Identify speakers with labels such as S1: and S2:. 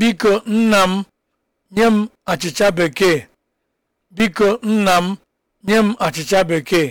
S1: biko nna m nye m achịcha bekee biko nna m nye m achịcha bekee